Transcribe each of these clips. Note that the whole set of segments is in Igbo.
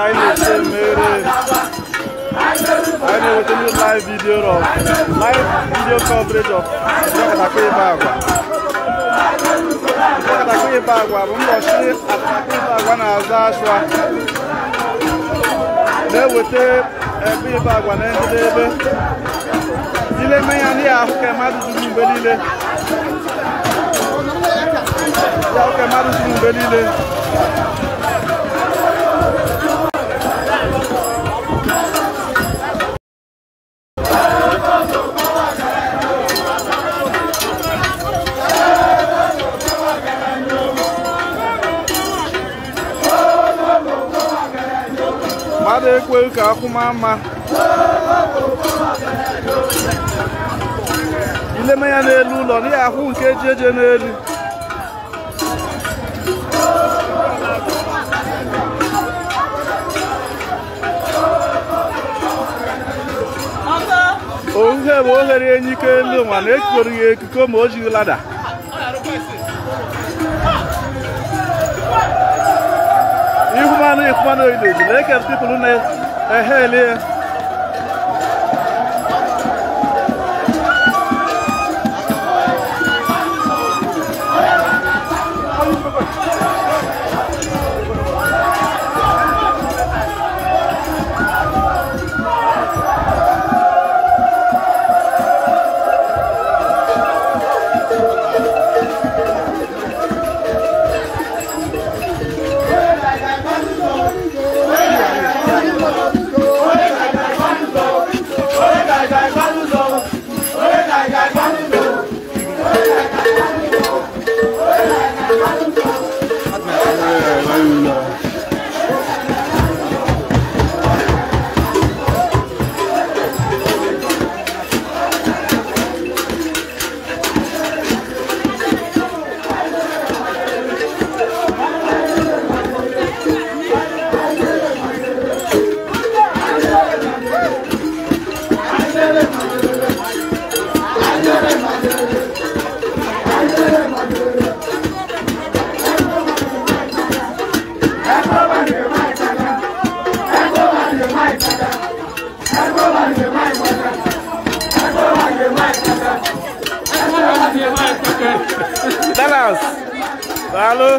I need to I know what you live video of live video coverage of Jakarta Bagua. Jakarta Bagua, we must see Jakarta Bagua na Azashwa. They will take every Bagua na Ndebe. Ile menya ni ahuke madu zulu mbelile. Ya ahuke madu zulu mbelile. ka akwụmama ileme ya n'elu ụlọ n'ihi ahụ nke ji eje n'elu ohe bụ oghere enyi ike elu nwa na ekoro ya ekiko ma o jighị lada ihumanụ ihumanụ oyido ji na-eke pipụl na 哎嘿，李。Dallas. Alô?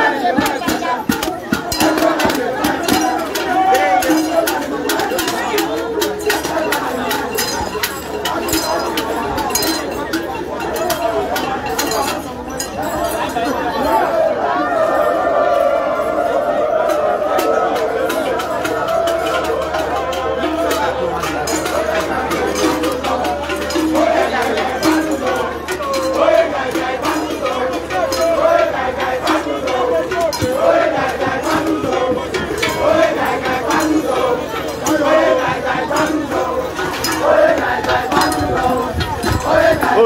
Thank you.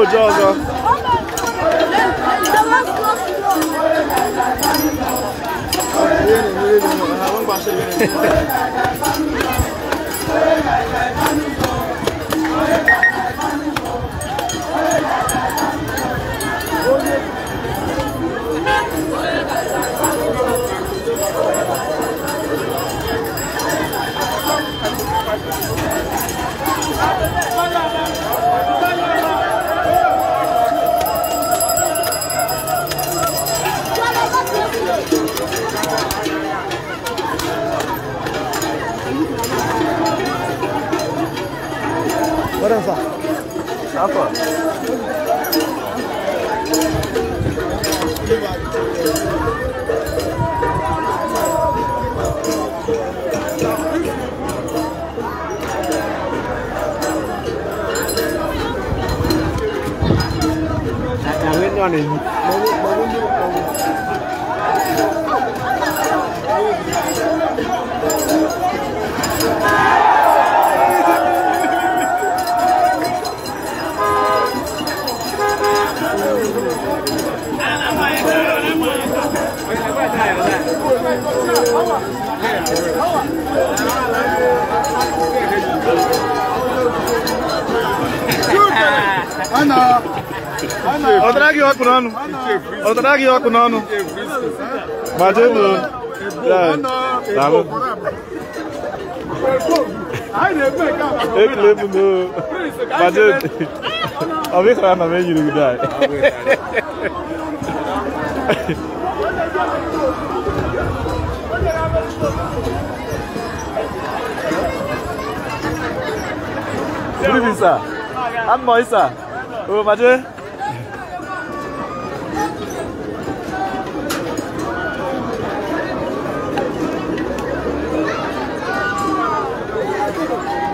oje ọzọ Hehehehe Barang sah. Apa? Jangan kan ini. Bangun, Ana! Ana! Outra guioco, Nano! Outra guioco, Nano! Batendo! É. Tá bom? Eu lembro do... Batendo! Ao ver que ela não vem de lugar. Grüße. An Mäuser. Oh, warte.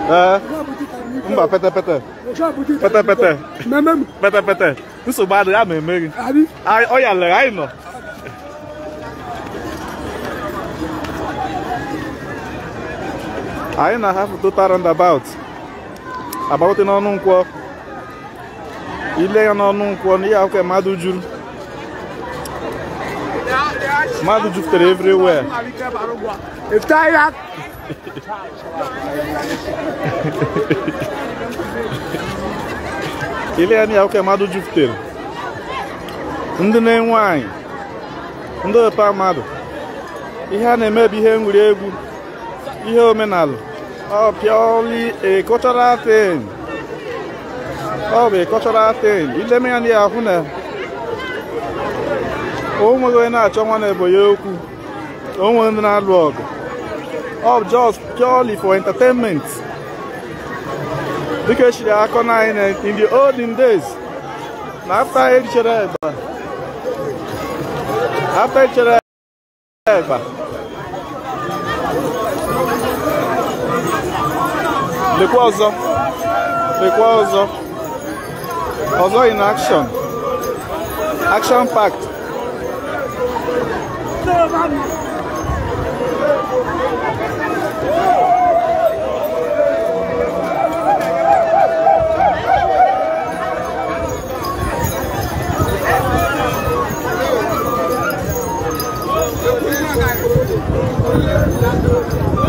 Ờ. Ông bảo pete pete. Pete pete. Mẹ mẹ. Pete pete. Nó số ba đứa à mẹ mẹ. Ai ơi à lời ai mà. I and a half to roundabout. About in Onunqua. Ile ya n'Onunqua, ni ya ke madu juru. Madu jutere everywhere. If é Ile ya ni ya ke madu jutere. Ndị na-enwe anyị, ndị ọpa mmadụ, ihe a na-eme bụ ihe egwuregwu, homem omenala ọ oh, purely e oh, a cultural ọ bụ a cultural thing ileme ya na ahụ na o nweghị onye na-achọ nwa na ebo ya okwu o nweghị ndị na-alụ ọgụ just purely for entertainment dịka akọ na anyị in the olden days na after echere eba after a. eba Dịkwa ọzọ dịkwa ọzọ ọzọ in action action packed Thank you.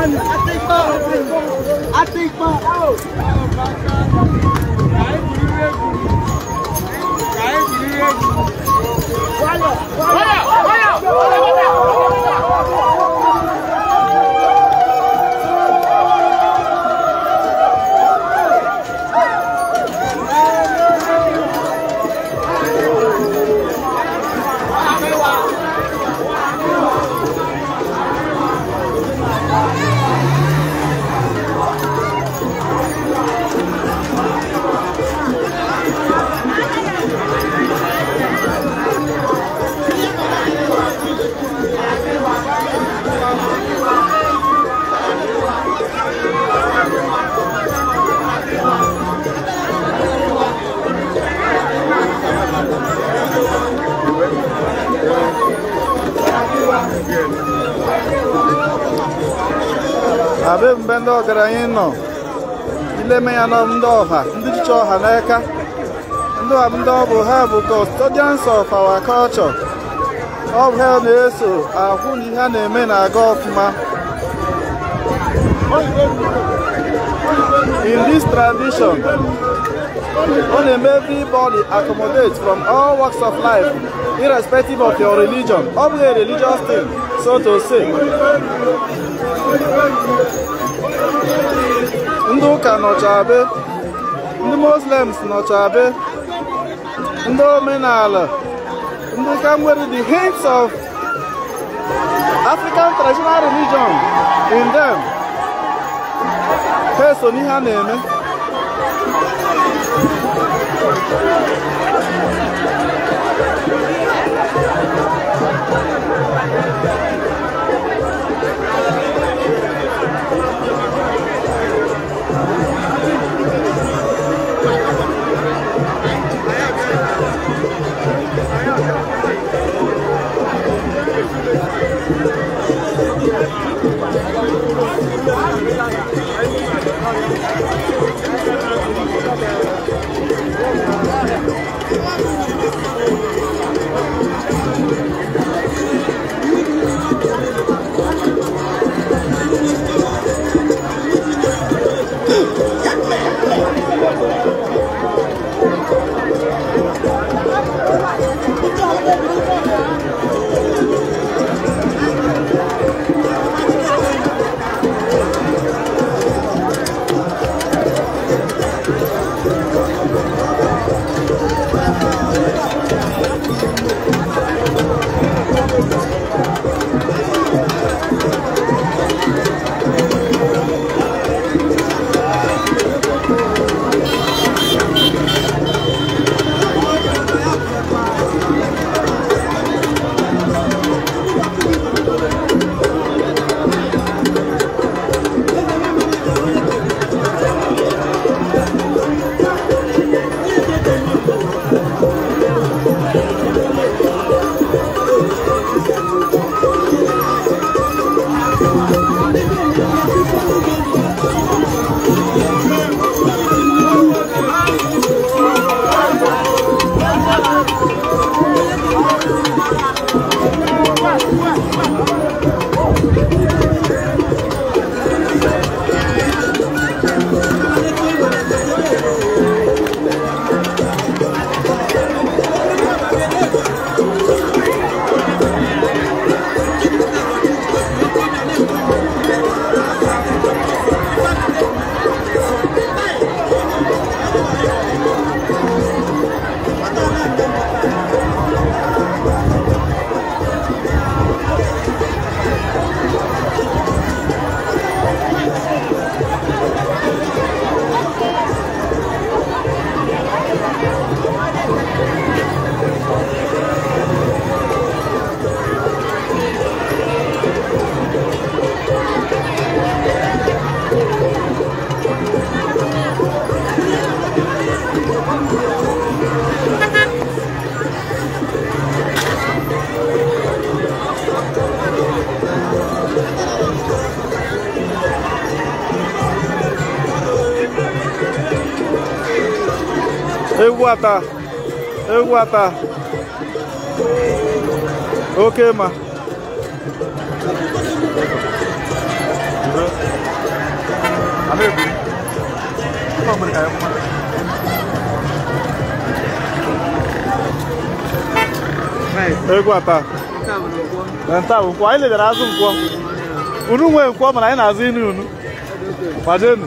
One. I think five. I think five. nọ ileme ya nọ ndị ọha ndị dịcha ọha n'aka ndị ọha ndị ọ bụ ha bụ custodians of our culture ọ bụ ha na-eso ahụ na ihe a na-eme na-aga ọfụma in this tradition ọ na-eme everybody accommodate from all works of life irrespective of your religion ọ bụghị religious thing so to say ndị ụka nọcha be ndị muslims nọcha be ndị omenala ndị ka the hints of african traditional religion in them ha eso n'ihe a na-eme Thank you. Thank you. Ewata. Ewata. Okay, ma. Ewata. Nta nkwọ, anyị ledara azụ nkwọ. Unu nwee nkwọ mana anyị na-azụ inu unu. Kwadenu. não? Fazendo.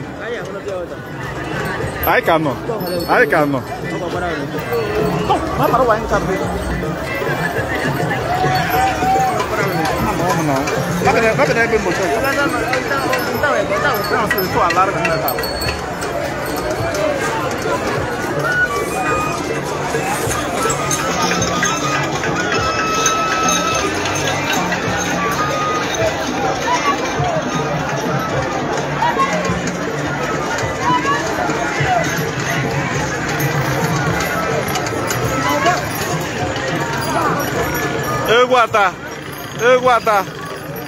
Aí Anyị Aí nọ. Kita Guatá, e Guatá,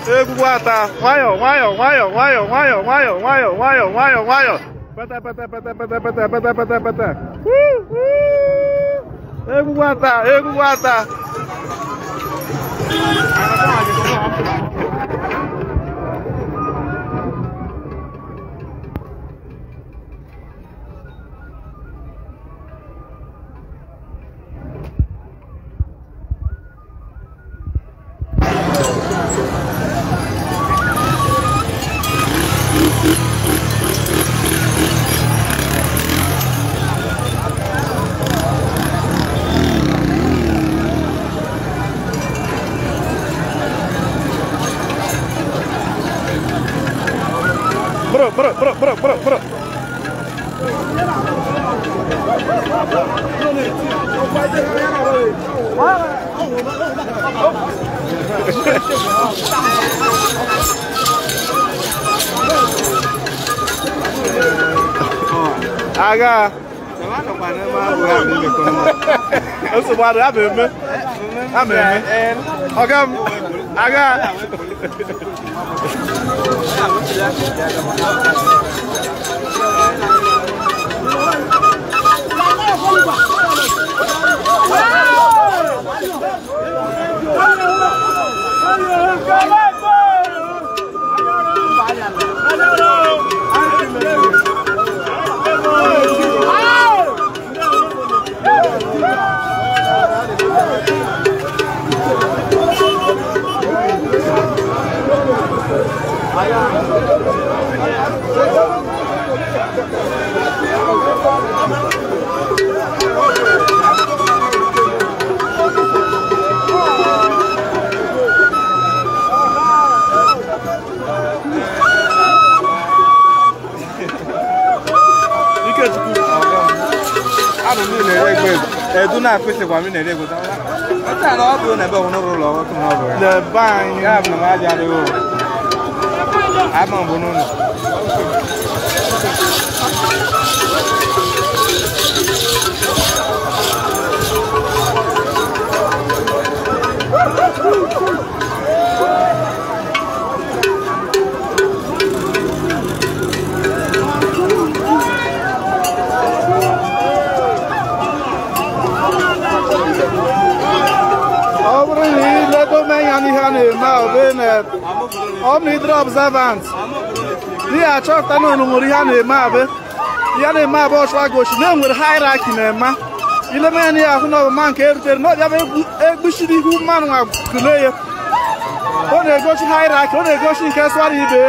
e Guatá. vai, wayo, vai, wayo, vai, wayo, wayo, wayo, wayo, wayo. vai, patá, pata, pata, pata, pata, pata, pata, pata. uh. Ego Guatá, ego Guatá. ameme ameme Come m aga. Thank you. edu na-akpịsị gwa na-ere ego taa na ọ bụrụ na ebe ọhụrụ ụlọ ọhụrụ n'ọbụ ya na ebe anyị ya bụ na m adịghị ụlọ ama bununu Thank you. servants ihe achọpụta na unu nwere ihe a na-eme abụ ihe na-eme abụ ọchụwa gochi na enwere hierarchy na-ema ileme ya na ihe ahụ na ọbụma nke erutere na ọbịa egbuchiri ihu mmanụ nwa tụlee ya ọ na egosi hierarchy ọ na egosi nke swara ibe nke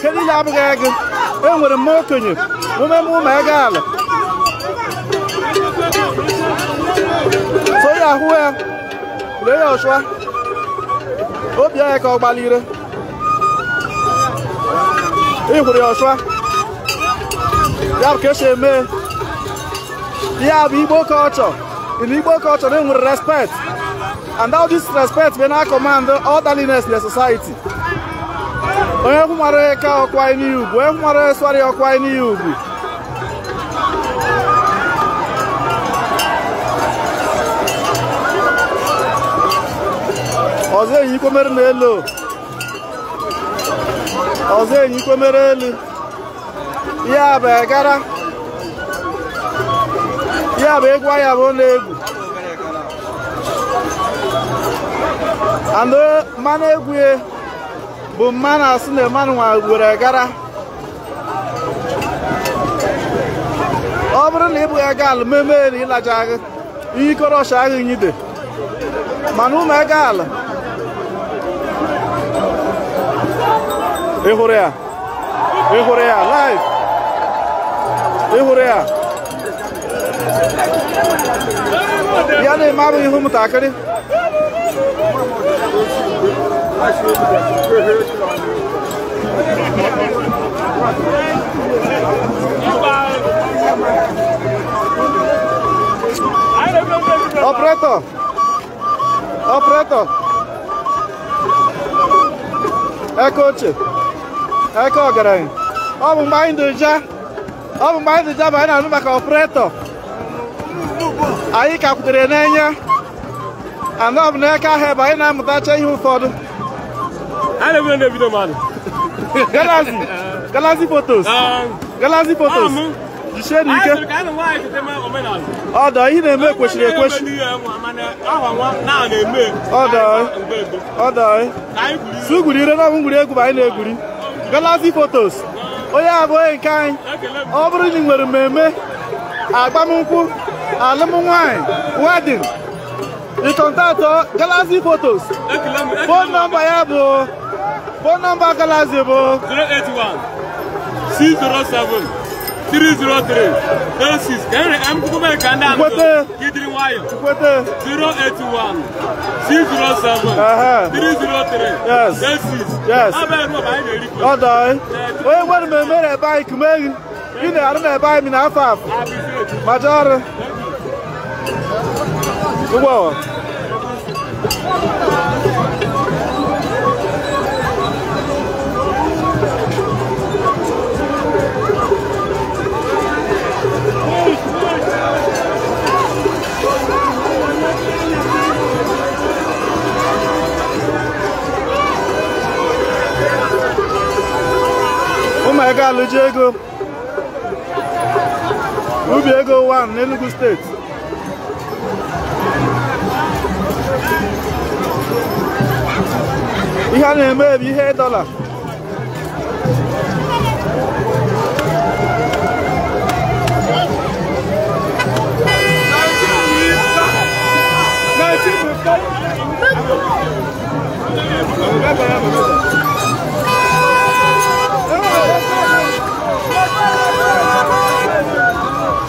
kedu ihe abụghị ego enwere mma okenye umeme ụmụ ego ala so ya ahụ ya lee ya ọchụwa obi ya ka ọ gbalire ihụrụ ya ọsụa ya bụ ka esi eme ya bụ culture in igbo culture they nwere respect and all this respect be na command orderliness in you society onye nwere ka ọkwa n'ihi ugwu onye nwere swarị ọkwa n'ihi ugwu ọzọ eyi ikomere n'elu ọzọ enyikwemere elu ya bụ egara ya bụ egwu ya bụ na-egwu anụ eh, mmanụ egwu bụ mmanụ asị na mmanụ nwa gwere gara ọ bụrụ na ị bụghị ego ala meme elu ịlaja kọrọ ikoro ọcha agha nyide mana ụmụ ego ala Ehurea. Ehurea, live. Ehurea. Ya ne e Rumo mutakari. Ó o preto! Ó o preto! É, coach! eke ọgaranya ọ bụ mgbe anyị doja ọ bụ mgbe anyị doja bụ anyị na-anụ maka ọpụretọ anyị ka kwutere n'enya anọ ọ bụ na eke ahụ ebe anyị na-amụtacha ihe ụfọdụ galazi galazi fotos ah. galazi fotos jisie n'ike ọdọ ihe na-eme kwesịrị ekwesị ọdọ ire na egwu bụ anyị na-egwuri galaxy photos onye abụghị nke anyị ọ bụrụ na ị nwere mmemme agbamnkwụ alụmnwaanyị wedin ịkọntaktọ galaxy photos fon nọmba ya bụ fon nọmba galaxy bụ 081 607 303 06 Henry M. Kukume Kanda Chukwete Kidri Wayo Chukwete 081 607 uh -huh. 303 Yes 06 Yes Abe Ruo Ba Ine Rikwe Ọ dọị Onye nwere m emere ebe anyị kume gị Ị na-arụ na ebe anyị na afọ afọ Maja ọrụ Ụgbọ ego alụji ego ubi ego 1 Enugu State. ihe a na-eme bụ ihe dọla Bye-bye.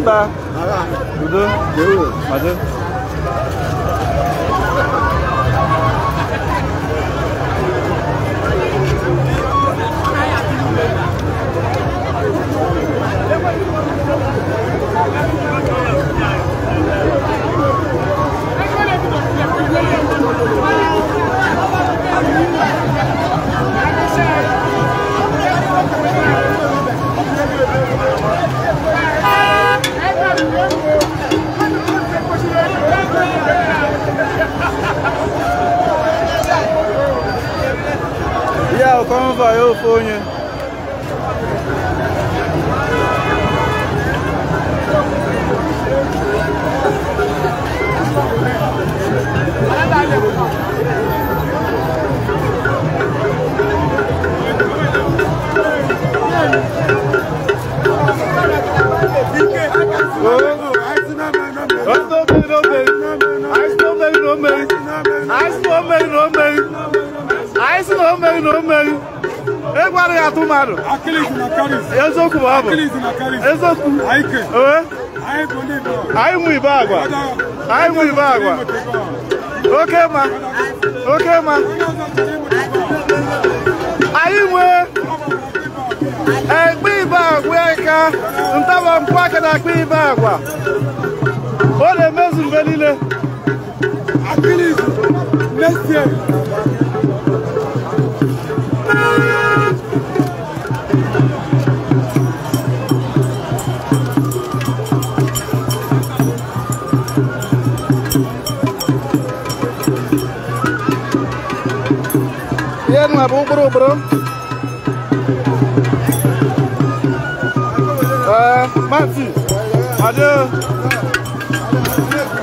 좋다 누드 매우 맞아 ịmụ oke ma oke ma anyị nwee ekpe eh, ibe agwa aka ntawa mpụ aka na akpa ibe agwa ọ na-emezu mgbe niile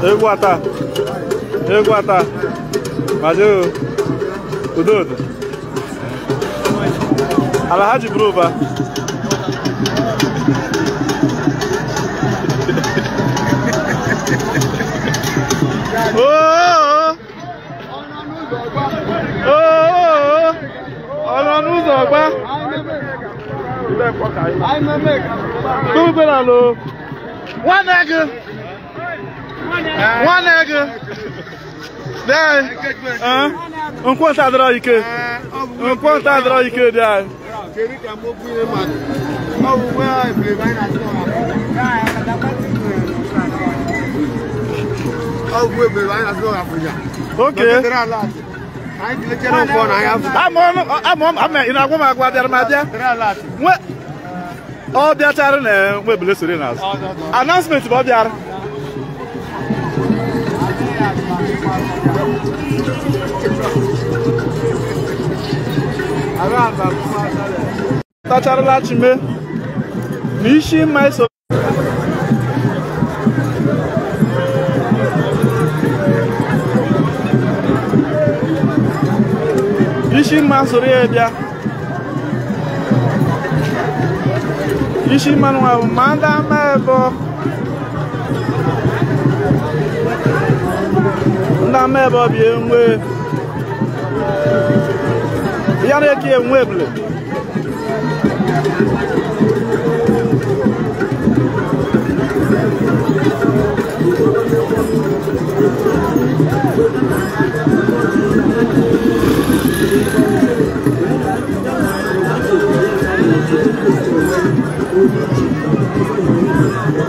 Eu Guatá. Eu Guatá. Mas eu. O Dudu, Ela é rádio bruba. Oh, oh, oh. Ọ̀nà n'ụzọ ọgba. Tupu bela lo. one nega, one nega. Enquanto eh? eh? a droga, enquanto eh. a droga, dai. Okay. Ama ị na-agwa m agwa bịara m abịa ọ bịachara na nwebule soro n'azụ announcement bụ ọ bịara tacharala chime na isi ma eso isi mma soro ya bịa isi mma nwa bụ ma ndị ama ebe ndị ama ebe ọ bụ enwe ya na-eke enwe ebule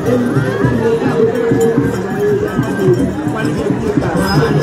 Thank you.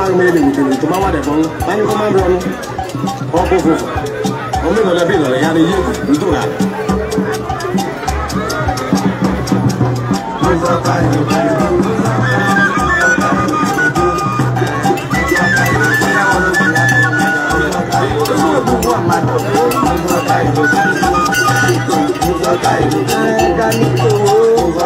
máa ń mẹ́rin ìwòtòrò tó bá wà dẹ̀ fún báyìí kó máa ń rọnu ọkọ̀ fún ọmọ ìlọlẹ̀ bí ìlọlẹ̀ yára yé ìdúrà. Thank you.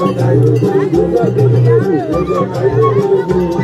Thank you.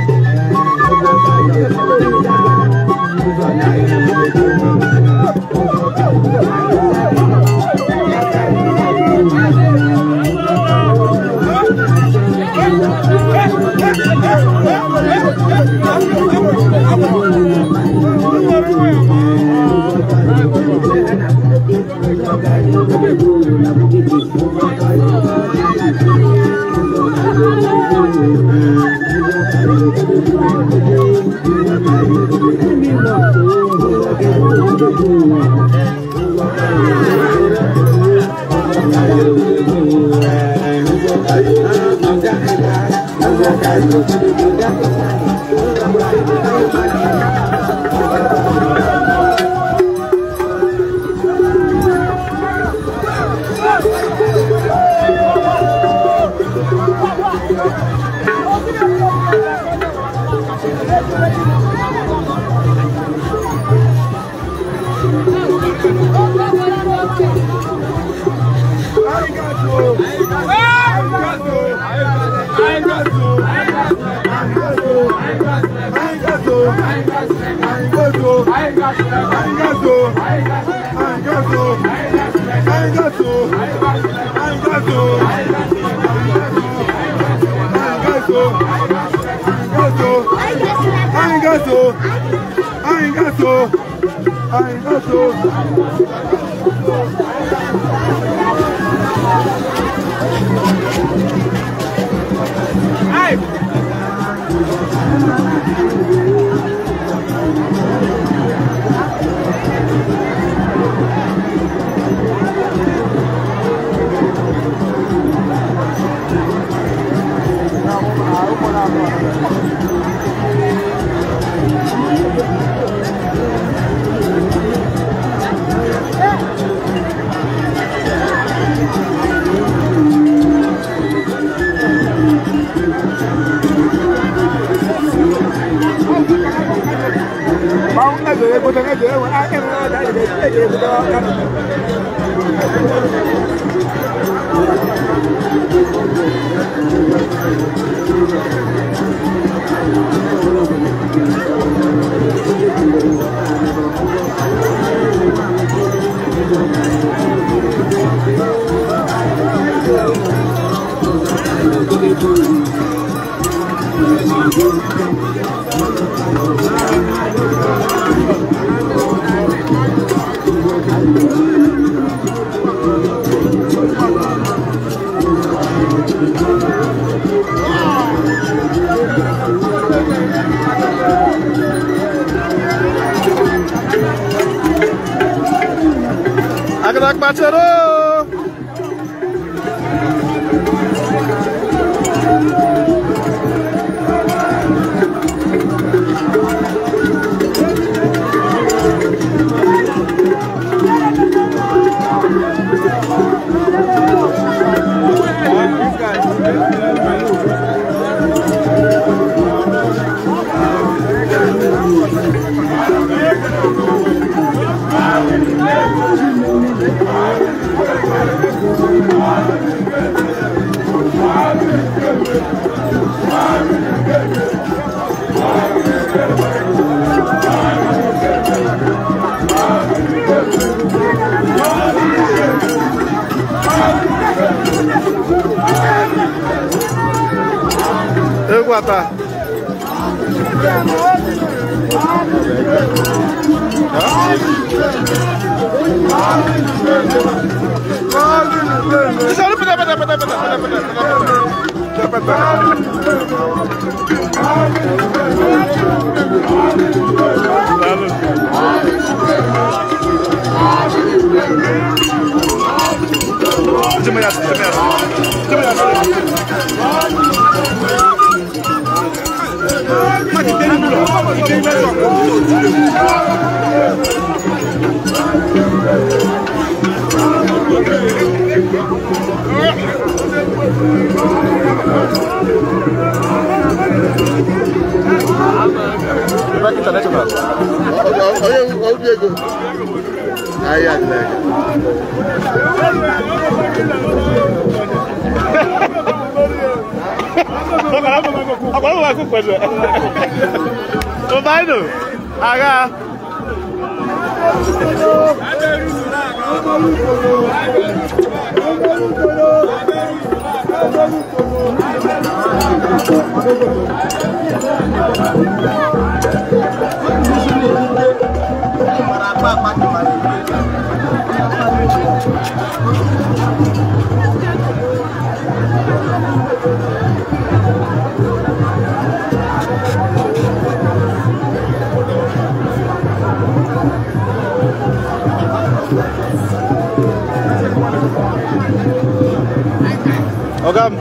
ọ̀gá mi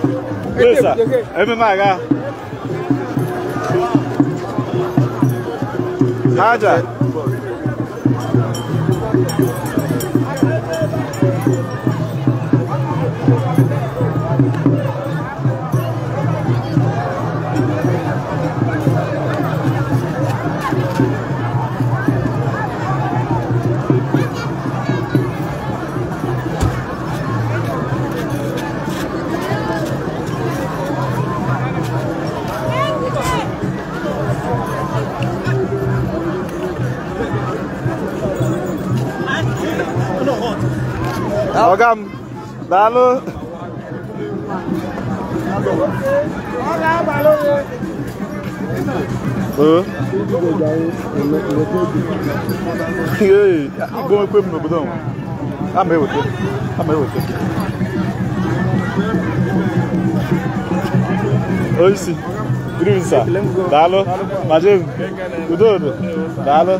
pèsè ẹ̀mí máa ga. Haja. luôn, ừ. cái gì, Ogam. Dalo. Ee, igbo ekwe m n'obodo m. Ama eweta. Ama eweta. Oisi. Grimsa. Dalo. Majem. Udodo. Dalo. Dalo.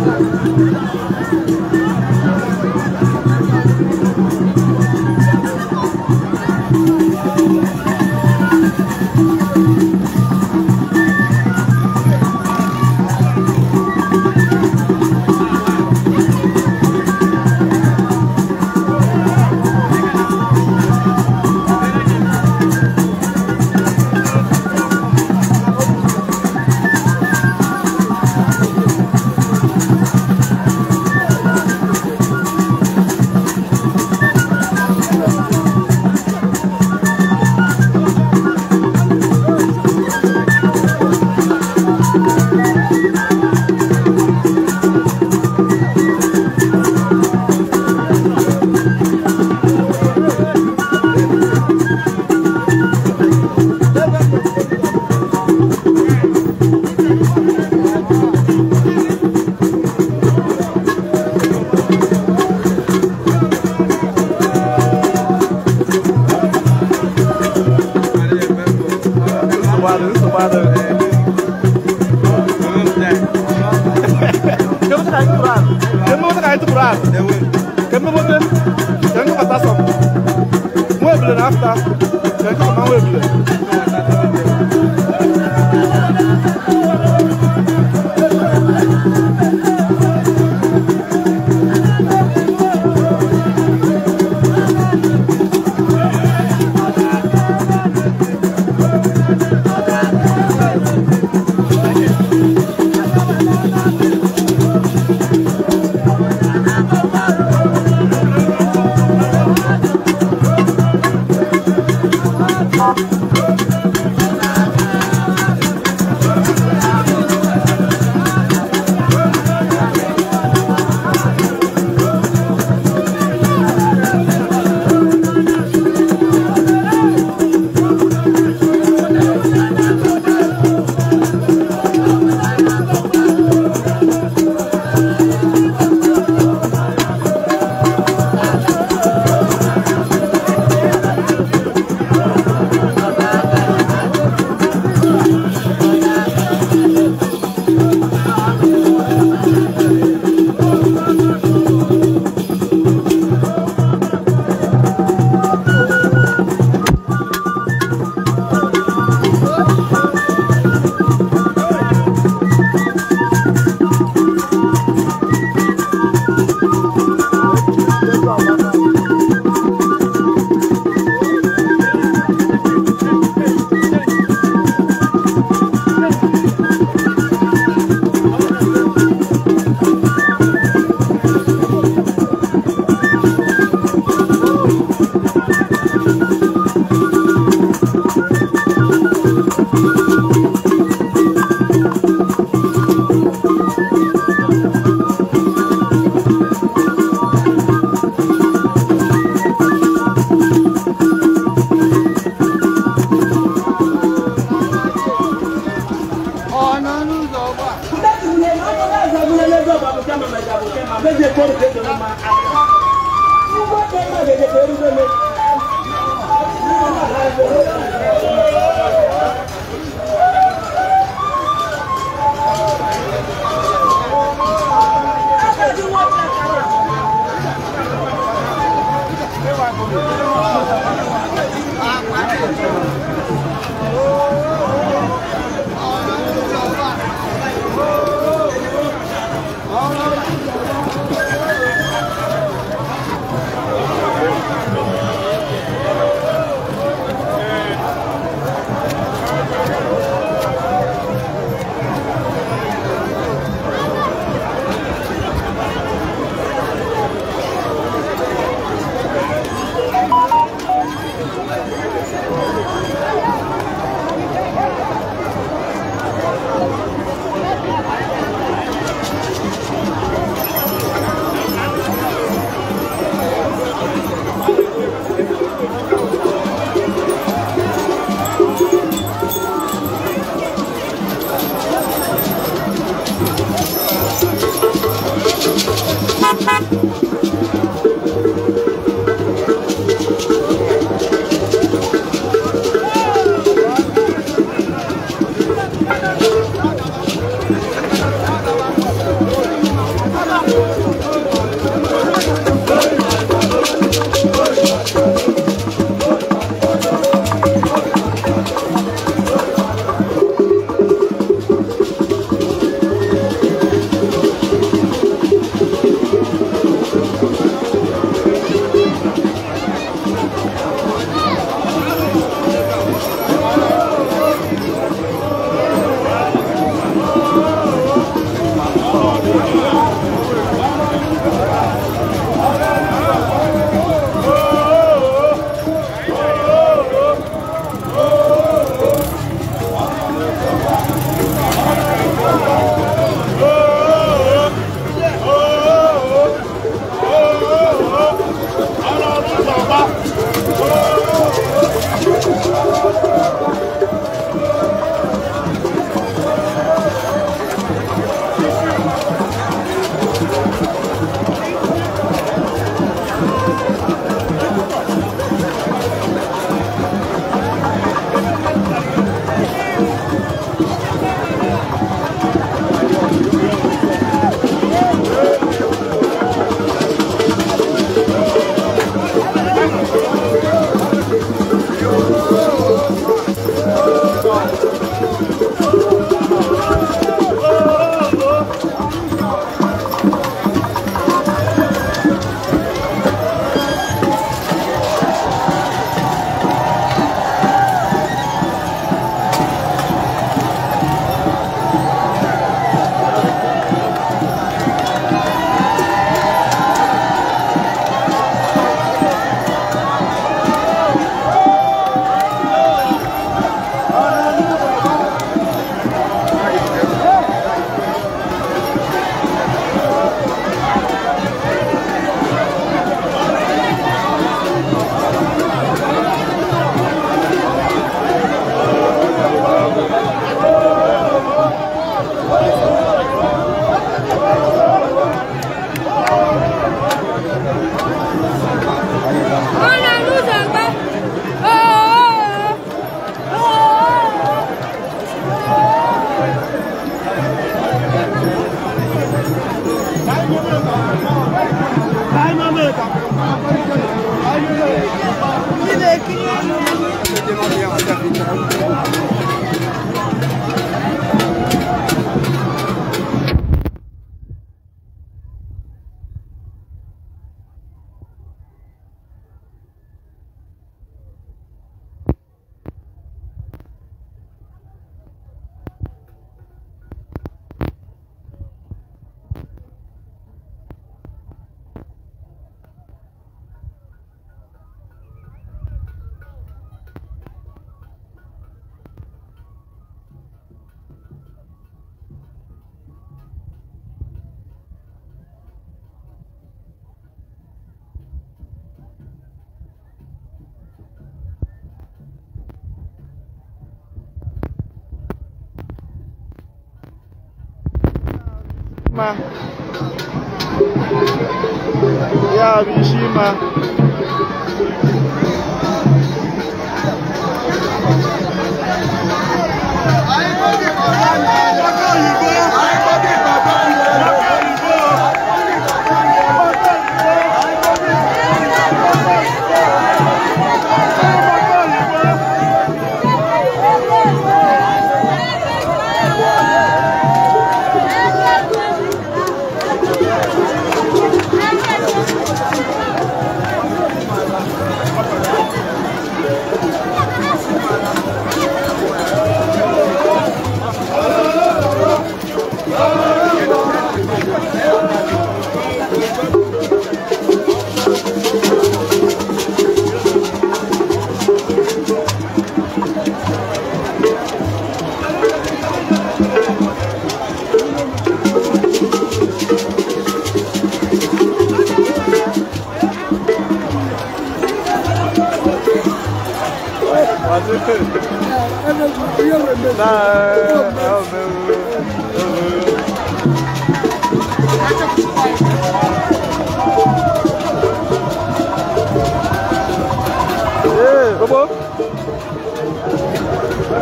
ka itu kurang dia mau tak itu kurang kami mau deh jangan kata sok mau beli nafta jangan kau mau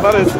That is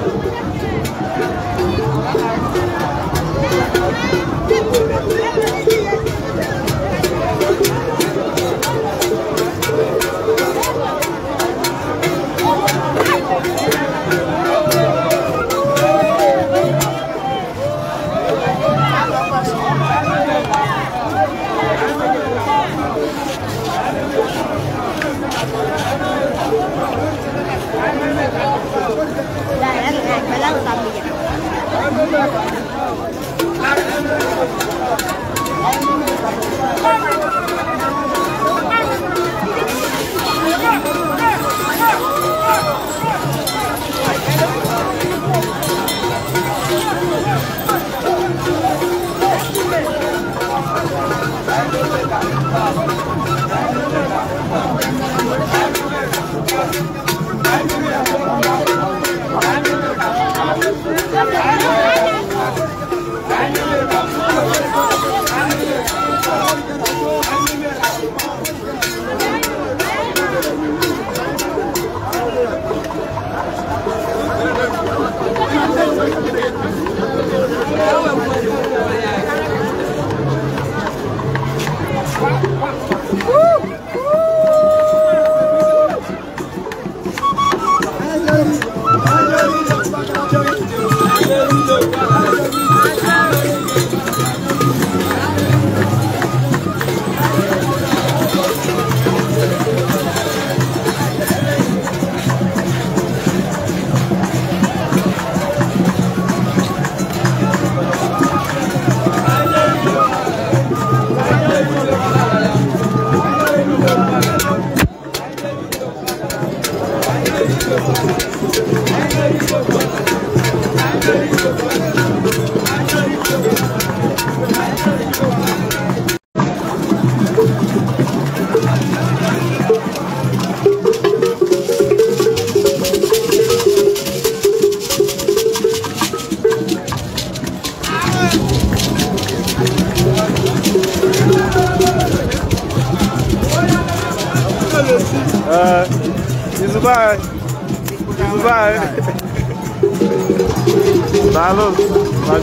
I Hacı.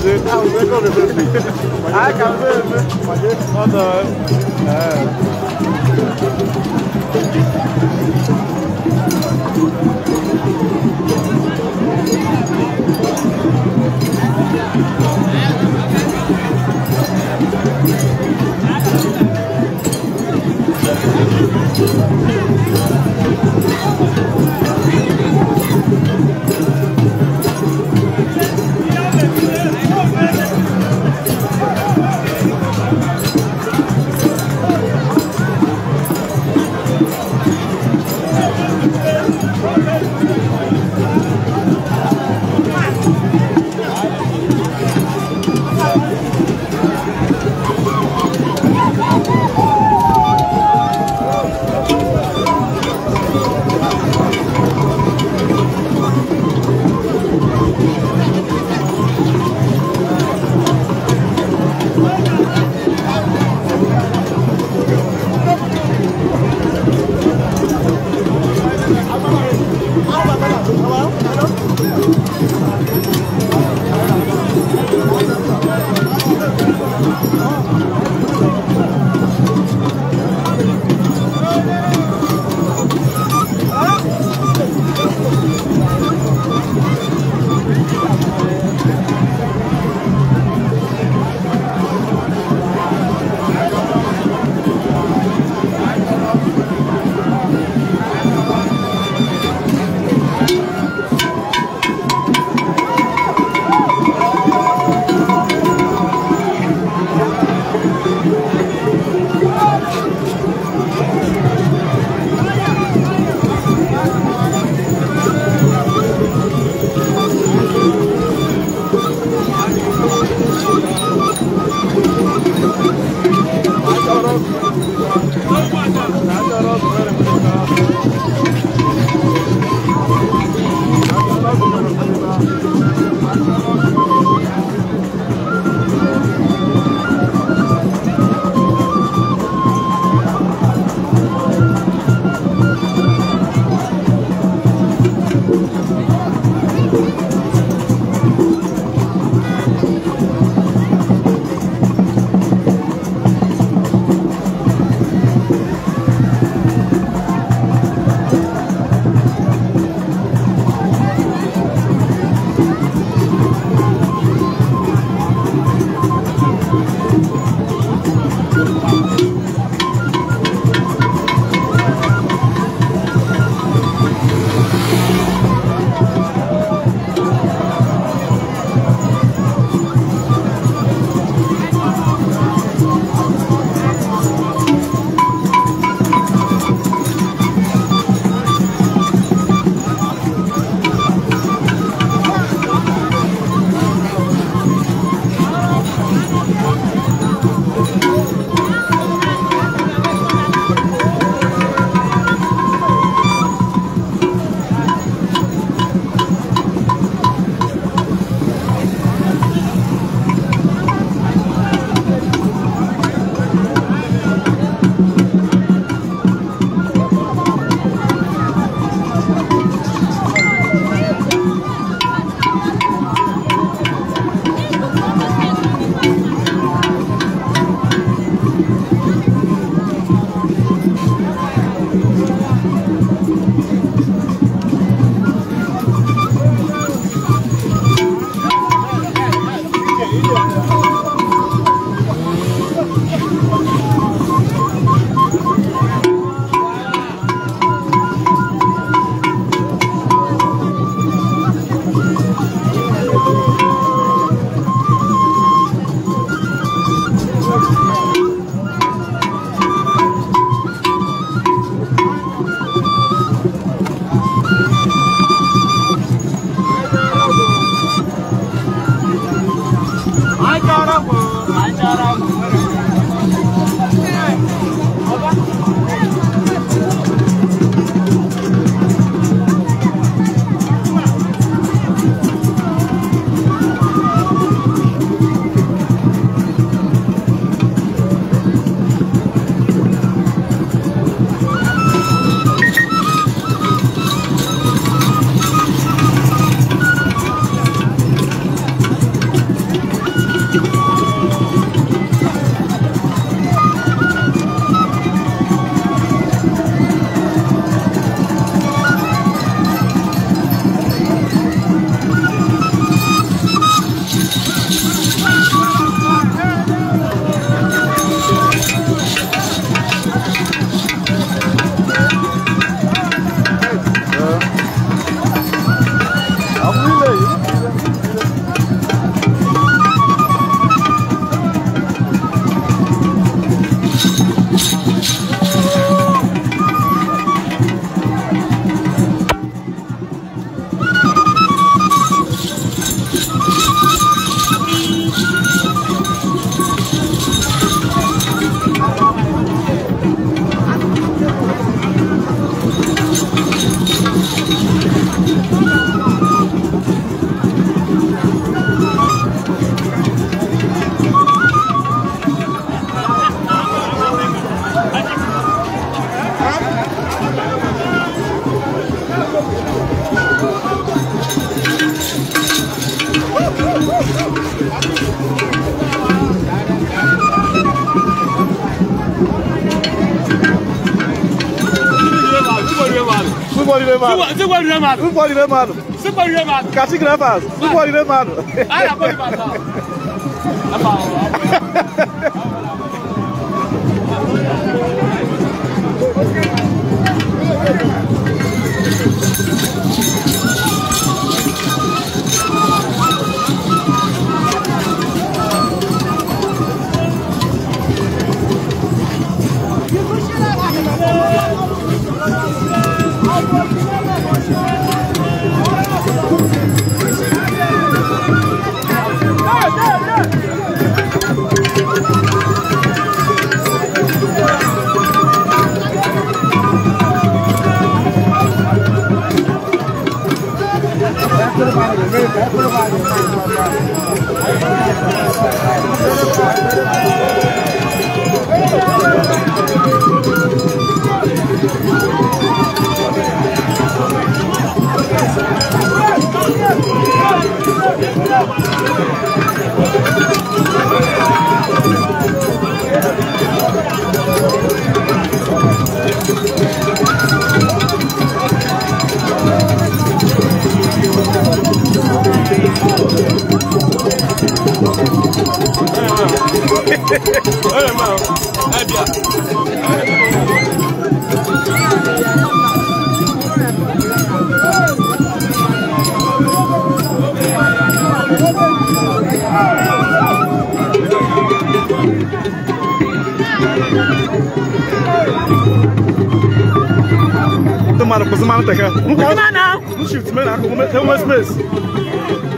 Ne I Ha kapı mı? Hacı. O da. He. Thank you. remado. Cinco remado. Um pode remado. Cinco remado. Cacique remado. Um pode remado. Ah, pode remado. É bom. mana kuzimana taka mushift mena kume space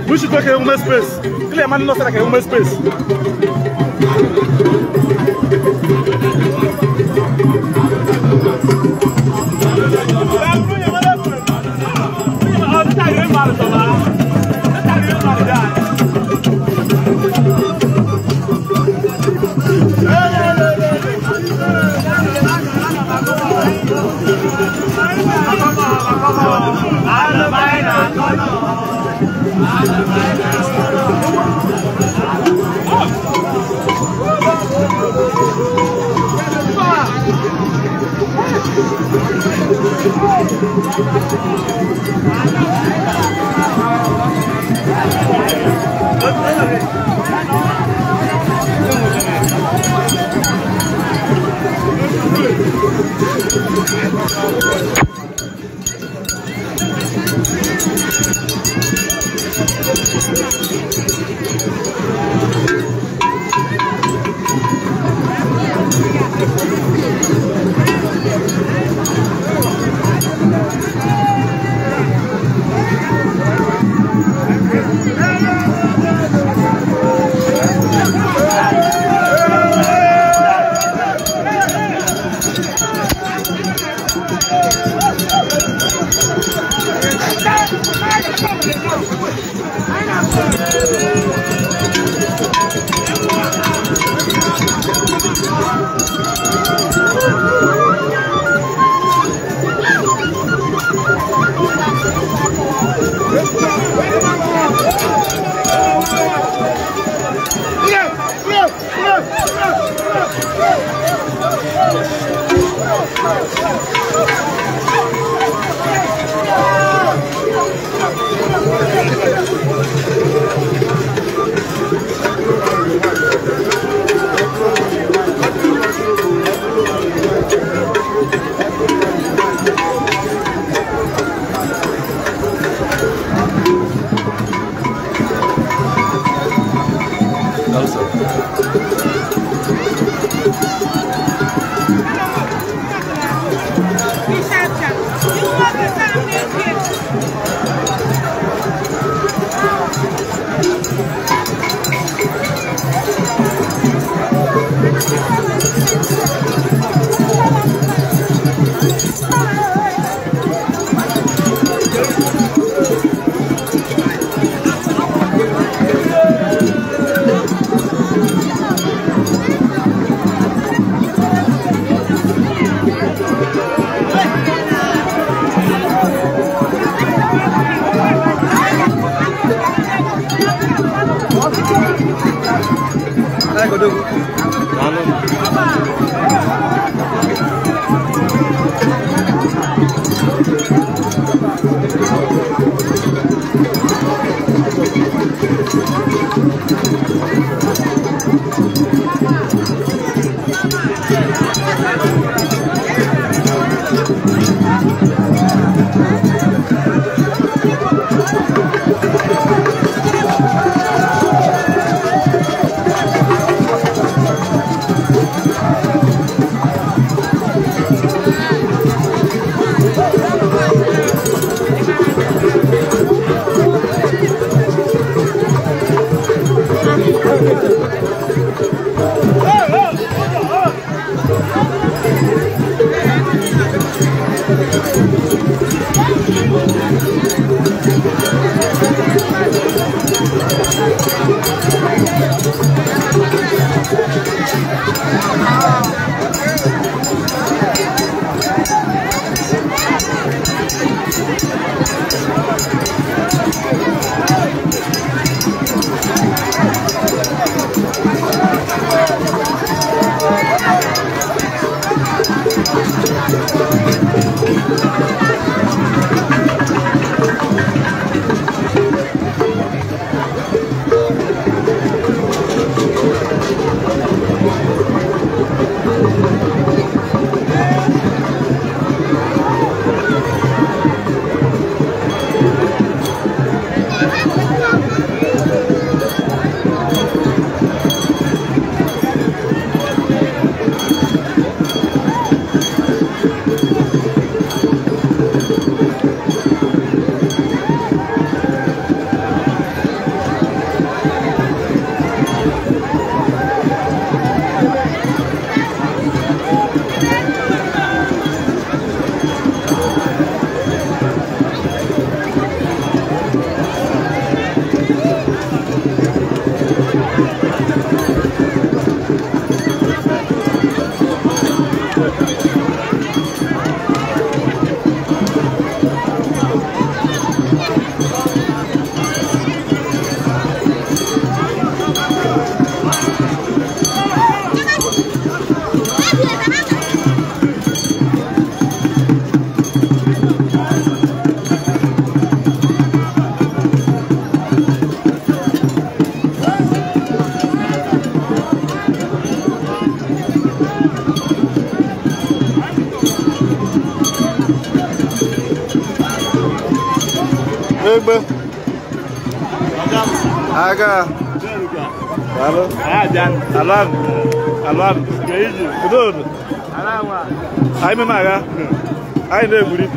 mushift ke kume eh, space kile mani nosera ke kume eh, space Thank you. ka alo alam alam kudur ayi mi ma ka ayi ne buri.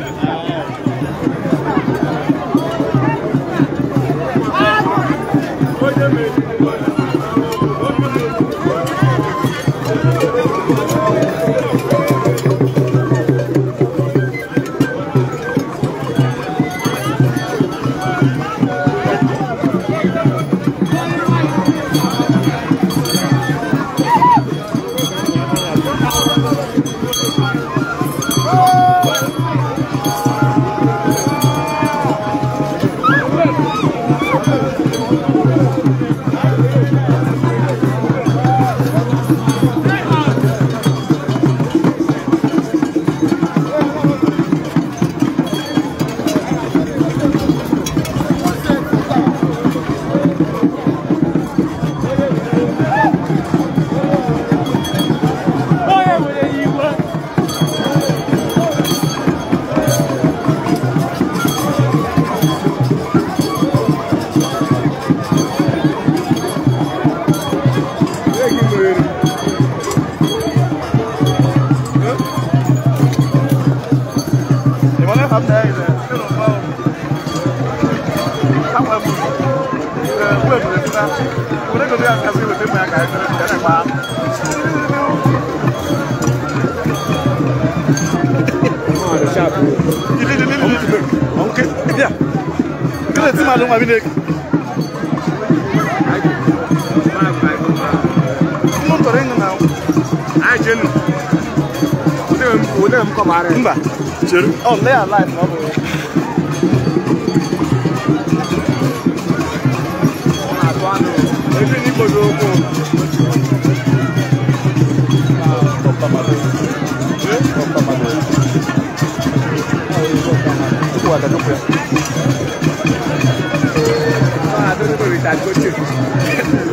renga na a jenu ode m ode oh lay alive no bo na to anu ebi ni ko do ko ko pa ma ada no ko ah do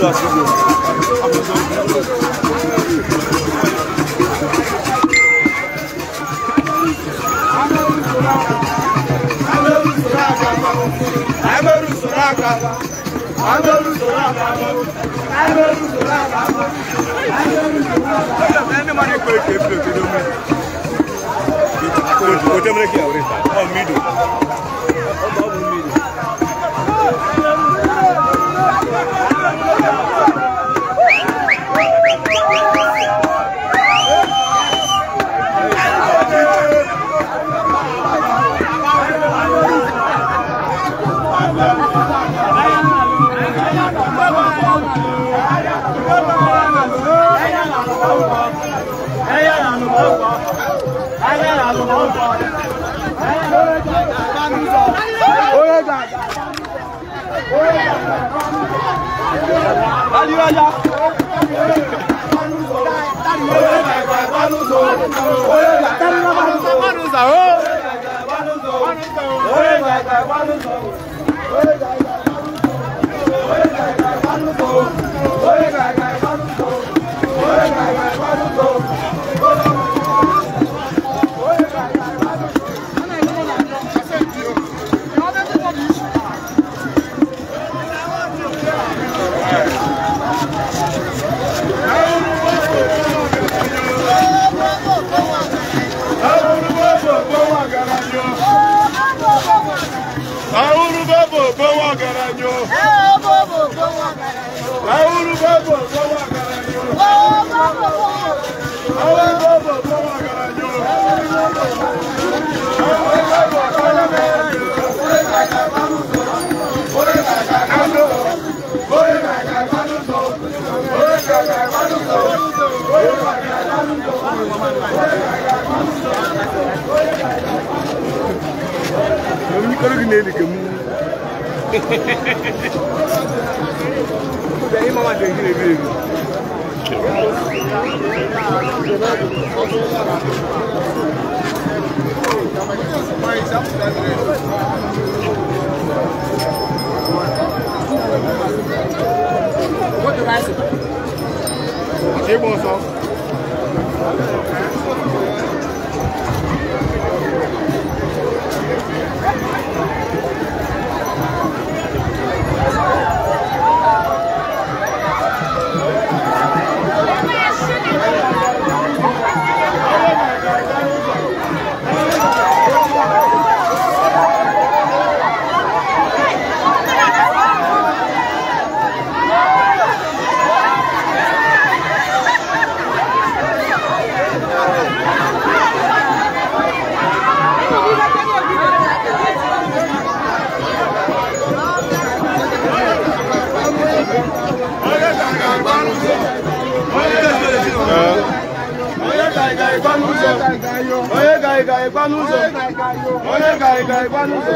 Kau tak mereka awak ni, oh midu. Aliwaya. Tariwa. Eu me coloco nele, que é muito. Daí, mamãe, tem que ir Quanto mais? Achei bom só. Thank you. ịgba onye ga-ịga ịgba onye ga-ịga ịgba onye ga-ịga ịgba n'ụzọ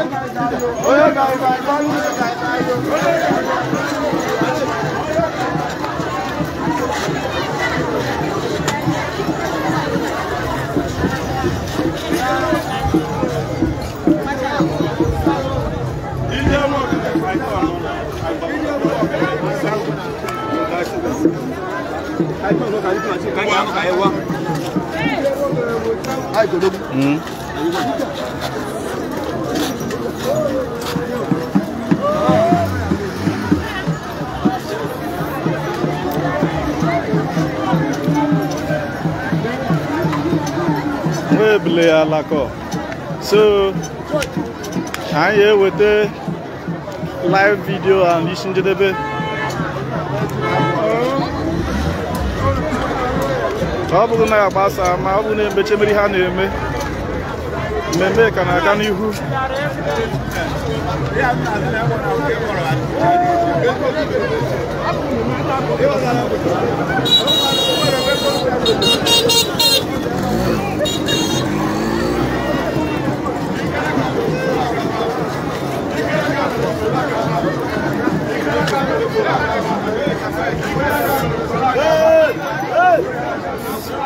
Kayu, kayu, kayu, kayu, kayu, kayu, kayu, kayu, kayu, kayu, kayu, kayu, kayu, kayu, kayu, kayu, So, i here with the live video and listen to the bit. ọ bụghị na ya gbasa ma ọ bụrụ na-emechi mmiri ha na-eme mmemme ka na-aga n'ihu Hey! Hey! Igaracaba.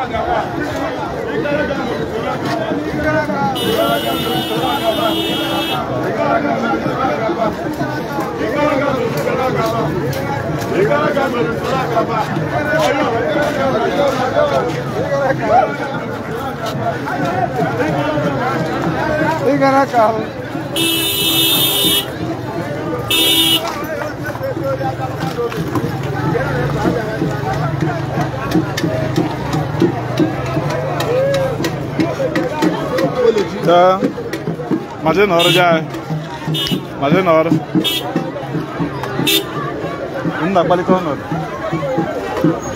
Igaracaba. Tá. Mas é na hora anyị, Mas é na hora. Não dá qualidade ou ebe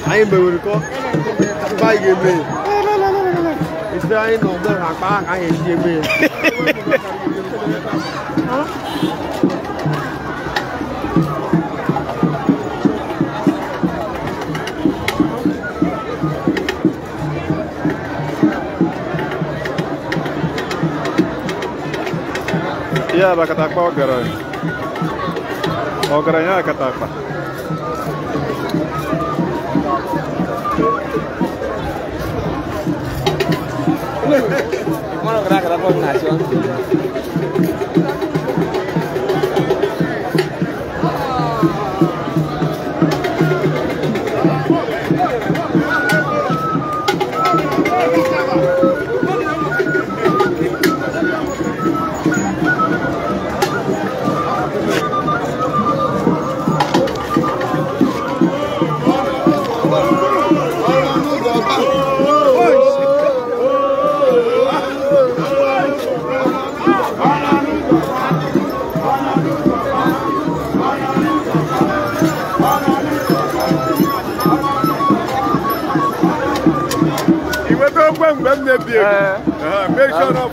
Aí, meu irmão. Vai, meu irmão. anyị aí não dá, rapaz. Aí, Iyaba katapa ogara. Ogara apa katapa. Bueno, gracias por la dey big. go? sure enough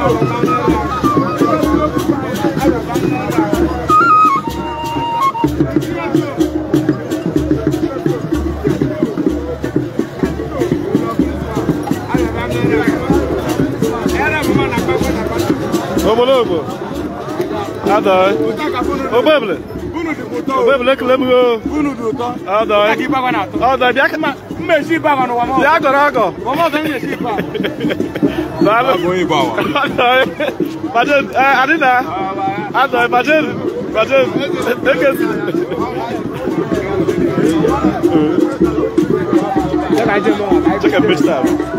Omologo. Adai. Eh? Obeble. Obeble que lembro. Adai. Adai, biaca me shi ba mano wamo. Ya go na go. Wamo fe me shi ba. Na lo go yi ba wa. Baje eh adina. Ado baje baje deke. Check a bitch time.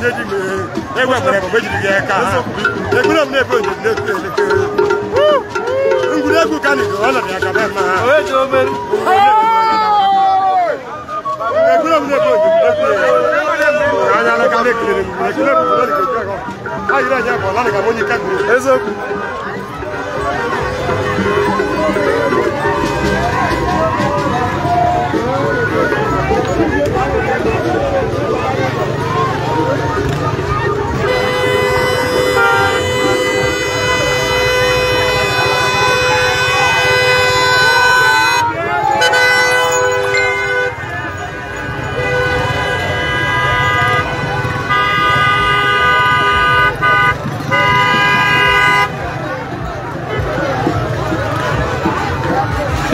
méjì mi ewepụrụ eziokwu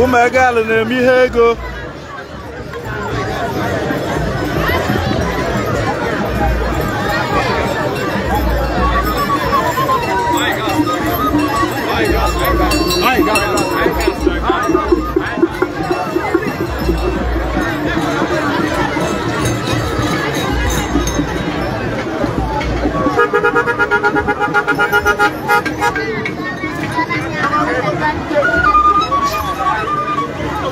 ụmụ egala na-eme ihe ego Thank you.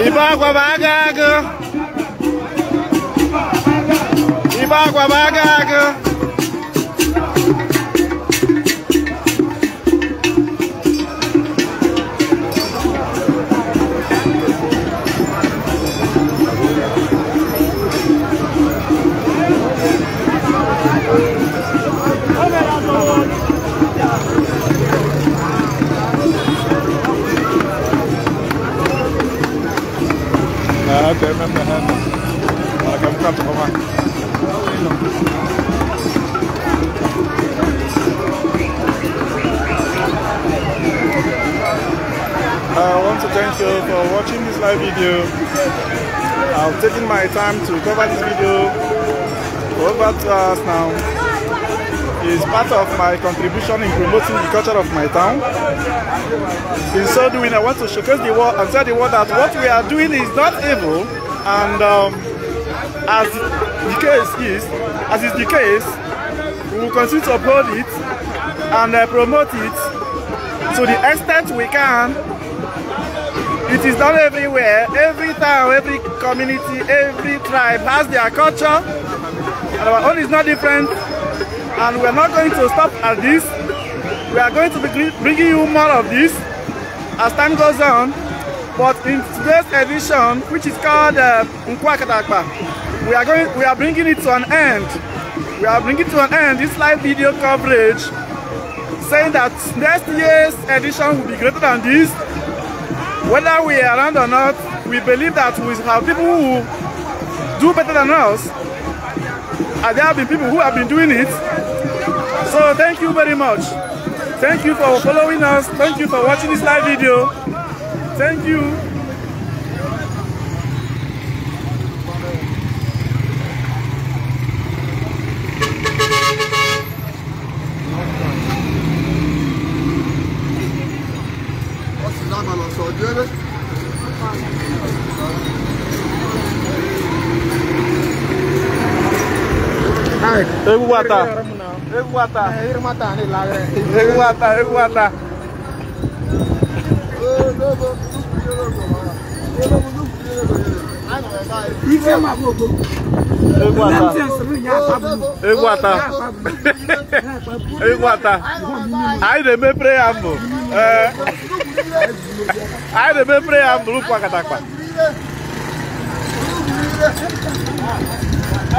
Ibagua bagaga. Ibagua bagaga. Oh, Okay, i I want to thank you for watching this live video. I've taken my time to cover this video over to us now. is part of my contribution in promoting the culture of my town. In so doing, I want to showcase the world and tell the world that what we are doing is not evil, and um, as the case is, as is the case, we will continue to uphold it and uh, promote it to the extent we can. It is done everywhere, every town, every community, every tribe has their culture, and our own is not different. and we are not going to stop at this. We are going to be bringing you more of this as time goes on. But in today's edition, which is called uh, we are going, we are bringing it to an end. We are bringing to an end this live video coverage, saying that next year's edition will be greater than this. Whether we are around or not, we believe that we have people who do better than us and there have been people who have been doing it. So thank you very much. Thank you for following us. Thank you for watching this live video. Thank you. Eguata. Eguata. Eguata ni lagre. Eguata, eguata. Eguata. Eguata. Anyị na-eme preambụl. Anyị na-eme preambụl o katakpa.